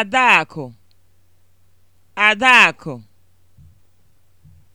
Adaku. Adaku.